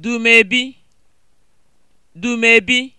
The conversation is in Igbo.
dumebi dumebi